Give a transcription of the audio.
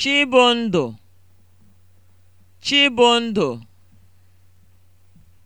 Chibụndụ Chibụndụ